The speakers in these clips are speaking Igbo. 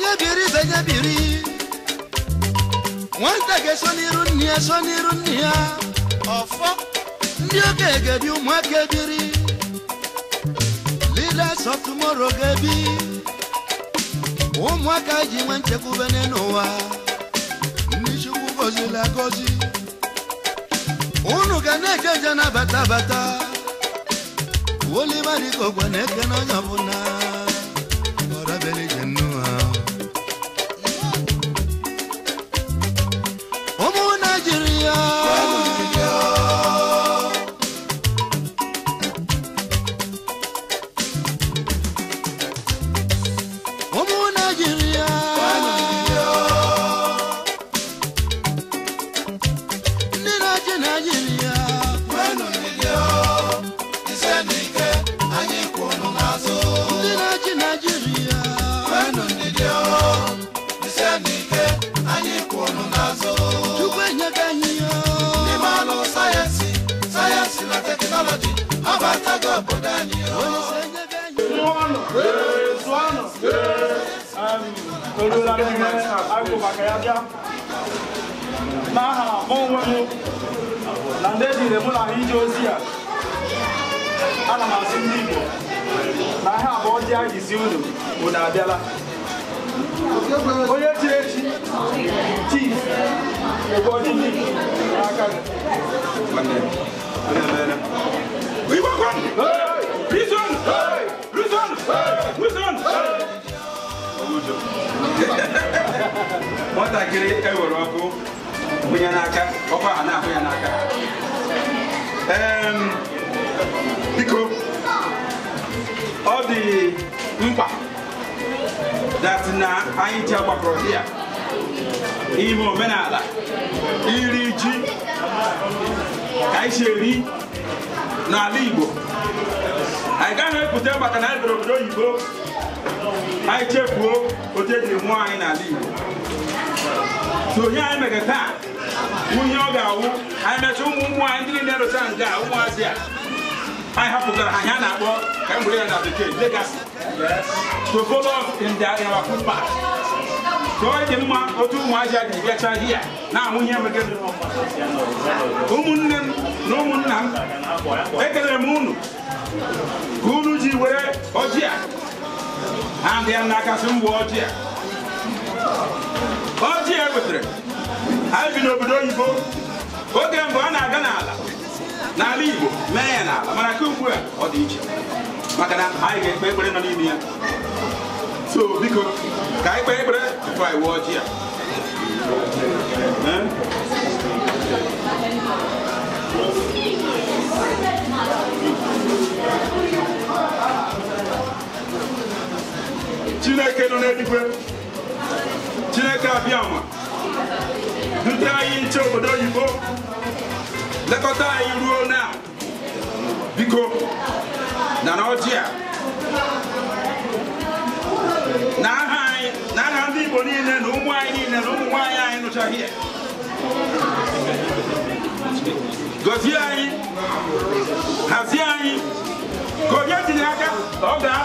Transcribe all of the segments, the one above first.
Senye biri, senye biri Wọ́n tẹ̀gẹ̀ sọ́nirú nìyà sọ́nirú nìyà ọ̀fọ́ ndị oge egebi ụmụaka ebiri leaders of tomorrow ga-ebi ụmụaka ji nwe nchekwube n'ụwa ndị chukwu gozila gozi unu ga na-eje nje nabata bata oliva dịka ogwe na-eke n'onye ọbụla ọrabeli Hallelujah. Olamide Agbobakayabia n'aha onwe m na udo nwatakịrị ewere ọkụ ya n'aka ọkụ aha na-ahụ ya n'aka biko ọ dị mkpa dati na anyị ji agbakọrọ di ya ime omenala iri ji ka anyị si eri n'ala Igbo anyị gaghị epụta maka na anyị bịara obodo oyibo anyị chefuo otu ejiri mụọ anyị n'ala Igbo so ihe anyị mere taa ihe ọ ga-awụ anyị mechaa ụmụ ụmụ anyị ndị niile rocha a ụmụazị a anyị hapụtara ha ya na-akpọ ka m ya na bekee legacy to follow up in their dị mma otu ụmụazị a ga-ebiacha ihe ya na-amụ ihe mere ụmụnne m na ụmụnna m ekelere m unu ka unu ji were ọjị a and ya n'aka sị m wụọ ọjị a ọjị a wetere anyị bi n'obodo oyibo oge mbụ ọ na-aga n'ala n'ala igbo mee ya n'ala mana ka ugbu a ọ dị iche maka na anyị ga-ekpe ekpere nọ n'ime ya so biko ka anyị kpee ekpere tupu anyị wụọ ọjị a chineke nọ n'eluigwe chineke abịama dute anyị nche obodo oyibo lekọta anyị ruo na biko na n'ọjị a na aha anyị na aha ndị igbo niile na ụmụ anyị niile na ụmụ nwaanyị anyị nụchaghị ya anyị hazie anyị ka onye tinye aka ọ gaa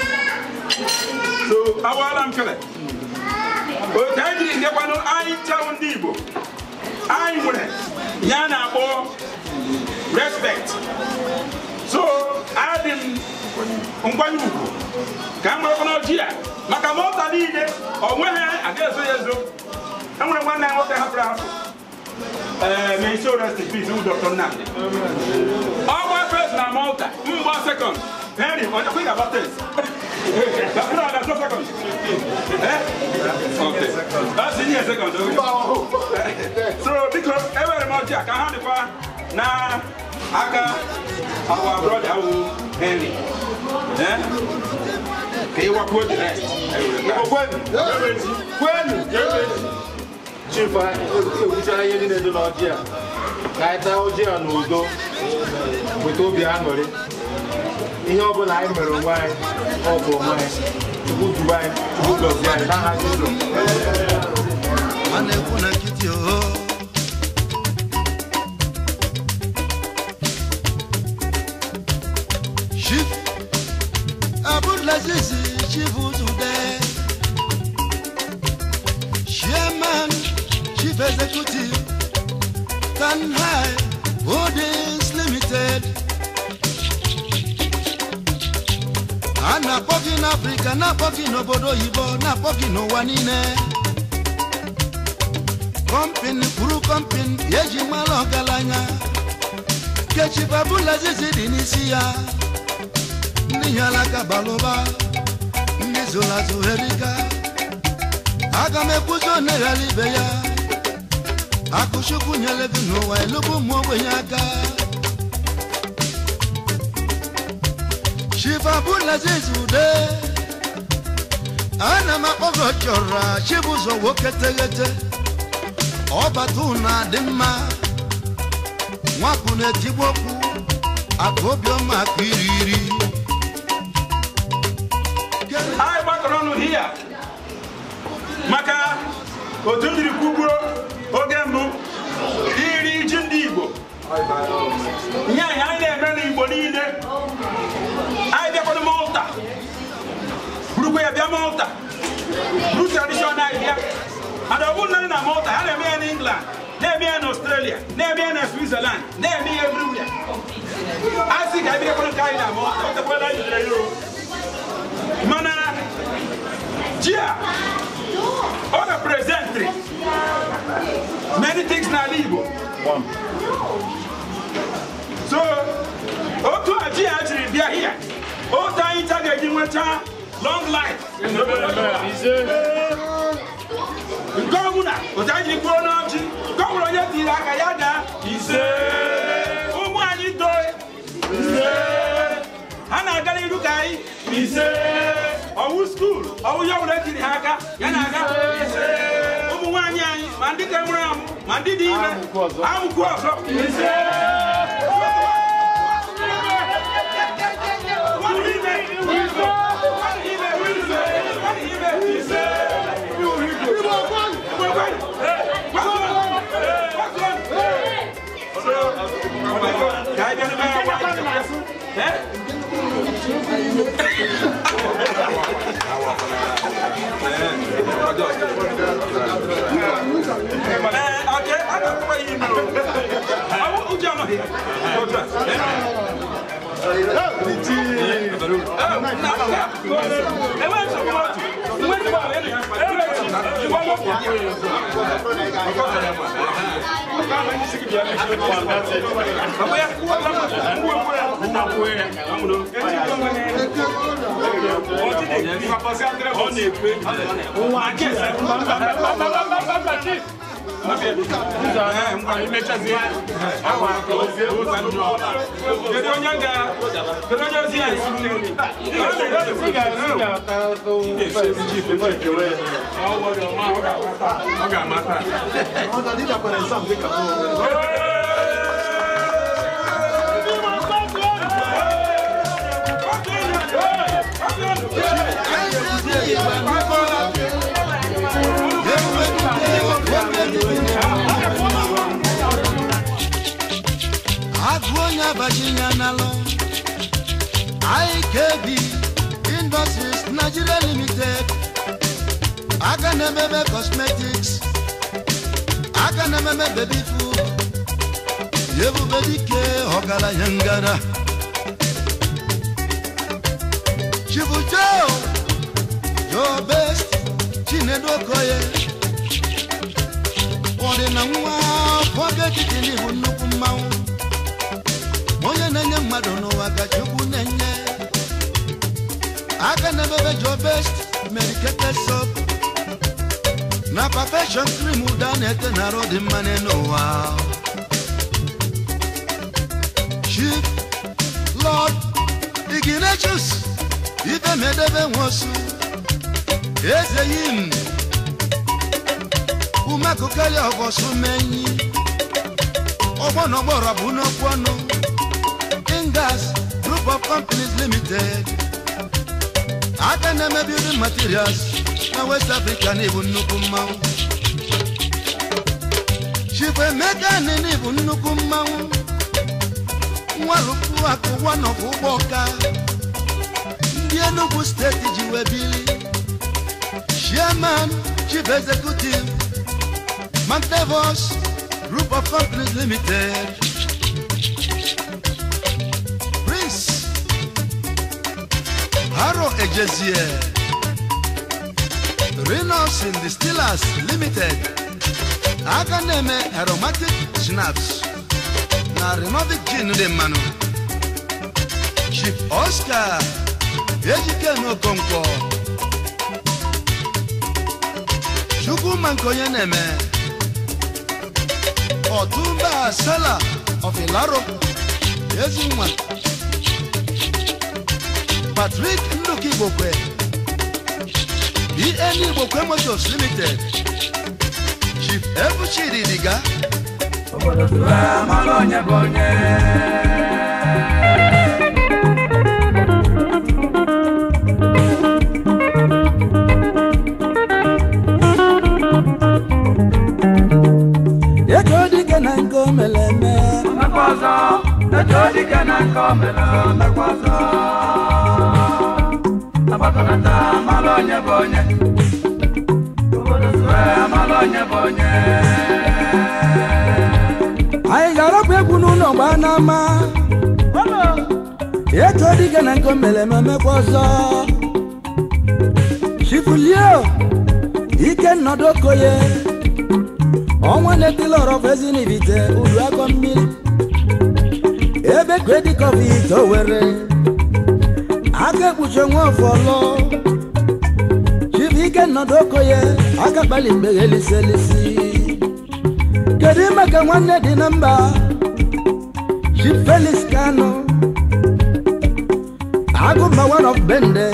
ɗo awalan kala o tawdi ndeɓa noon ayi tawndibo ayi mure ñana ɓo respect so aadin ngwanyugo ka ngwere kono jiya maka mota niile onweghị aga-eso ya ezo enwere nwanne ya nwoke hapụrụ hapụ eh, ma isi orest pis dr nnamdị ọgba pres na malta mgba sekọnd very much. Quick about this. That's not, that's go. second. Eh? Okay. That's in here second. Okay. So, because every much I can have the fire. Now, Aka, our brother, Henry. Eh? He was good. When? When? Chief, I wish I had any other idea. I thought I was here on Udo with Obi Amory ihe ọbụla anyị mere onwe anyị ọ bụ onwe anyị chukwu duba anyị chukwu gọzie anyị n'aha Jizọs Abulaziz Chivuzude Chairman Chief Holdings Limited na-akpọ gị na n'obodo oyibo na-akpọ gị n'ụwa niile kọmpin kwuru kọmpin eji mara ọgaranya kechi babula zizi dị n'isi ya ndị hialaka balụba ndị zụrụ azụ heriga aga m ekwuzi oneghara ibe ya akụchukwu nyere gị n'ụwa elubu ụmụ ogbenye aka Shiva Bulaziz Ude ana m akpọgo chọrọ Chibụzọ nwoke teghete ọbata na dị mma nwapụ na-etigbu okwu akụ obiọma akụ iri iri anyị gbakọrọ ọnụ maka otu m jiri oge mbụ iri ji ndị Igbo nye anyị anyị na-eme n'Igbo niile Malta. Do traditional idea. And I wouldn't in Malta. I in England. They in Australia. They in Switzerland. They everywhere. I think I be a good in Malta. What the hell Mana. Gia. All the presentry. Many things na legal. One. So, Otu Aji actually, they here. Otu Aji, they are here long life. Gọvanọ Otaji Kwuonochi, gọvanọ onye tiri aka ya daa ise. Ụmụ anyị toe ise. Ha na-aga n'iru ka anyị ise. Ọwụ skuul, ọwụ ya ọbụla etiri ha aka, ya na-aga ise. Ụmụ nwaanyị anyị ma ndị ka mụrụ amụ ma ndị dị ime amụkwu ọzọ ise. Okay, I got my email. I want Ujama here. Your dress. Hey, On est prêt. Ọ̀gá Yeah. Virginia Nalo IKB Industries Nigeria Limited Aganememe Cosmetics Aganememe Baby Food Yevu bedike Ogala Yangara Chivu Joe Your Best Chinedu Okoye Ọdịna nwa afọ ga-ekike n'ihu nnukwu mmanwụ onye na-enye mmadụ n'ụwa gajekwu na-enye aka na bebe jo best medicated na perfection cream ụda na-ete na arụ dị mma n'ụwa Chief Lord Ignatius ifemedebe nwosu eze yim umekụkeli ọbọsụ menyi ọgbọnọgbọrọ bụ n'okwu ọnụ Gas Group of Companies Limited. I Akaneme Building Materials Now West African Africa na ibu nnukwu mmanwụ. Chifu Emeka Nini come out. mmanwụ. Nwarukwu akụ wanọbụ ụgbọ ọka. Ndị no steeti ji wee bili. Chairman Chief Executive Mantevos Group of Companies Limited. Haro Ejezie, Reynolds in the Steelers Limited, Akaneme Aromatic Snaps, na Renovic Gin de Manu, Chief Oscar, Ejike Nokonko, Chukwu Mankoye Neme, Otumba Sala of Ilaro, Ezinwa. Patrick Nduka Igbokwe BN e Igbokwe e Motors Limited Chief Ebuchiri Diga ego dike na nke omeleme ọzọ ego dike na nke omeleme anyị ga-arapụ egwu n'ụlọ mgbe a na-ama etu ọ dịga na nke o mere ememekwa ọzọ chifulio ike nnọdụ okoye ọnwa na-etila ọrọbụ ezi n'ibite uru akọ mmiri ebe kredikọf ite owere aka ekpuchi onwe ọfọlọ chifu ike nnọdụ okoye aka kpali mgbe eliselisi kedu ime ka nwanne dị na mba Chief Felix Kanu Agụmba one of Bende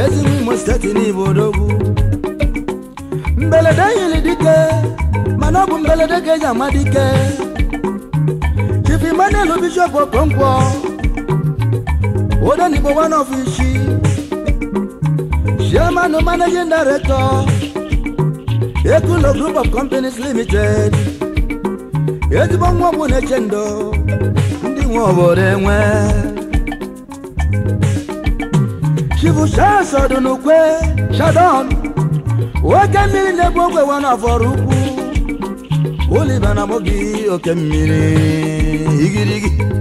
ezigbo Imo steeti n'Igbo odogwu mberede yiri dike mana ọ bụ mberede ka eji ama dike Chief Emmanuel Bishop Okonkwo Odenigbo one of Ishi Chairman managing Ekulo Group of Companies Limited ezigbo nwa ọgwụ na-eche ndụ ndị nwe obodo enwe chibu n'ukwe shadon nwoke mmiri na ebu ogwe wa n'afọrọ ukwu oliba na mogi oke mmiri igirigi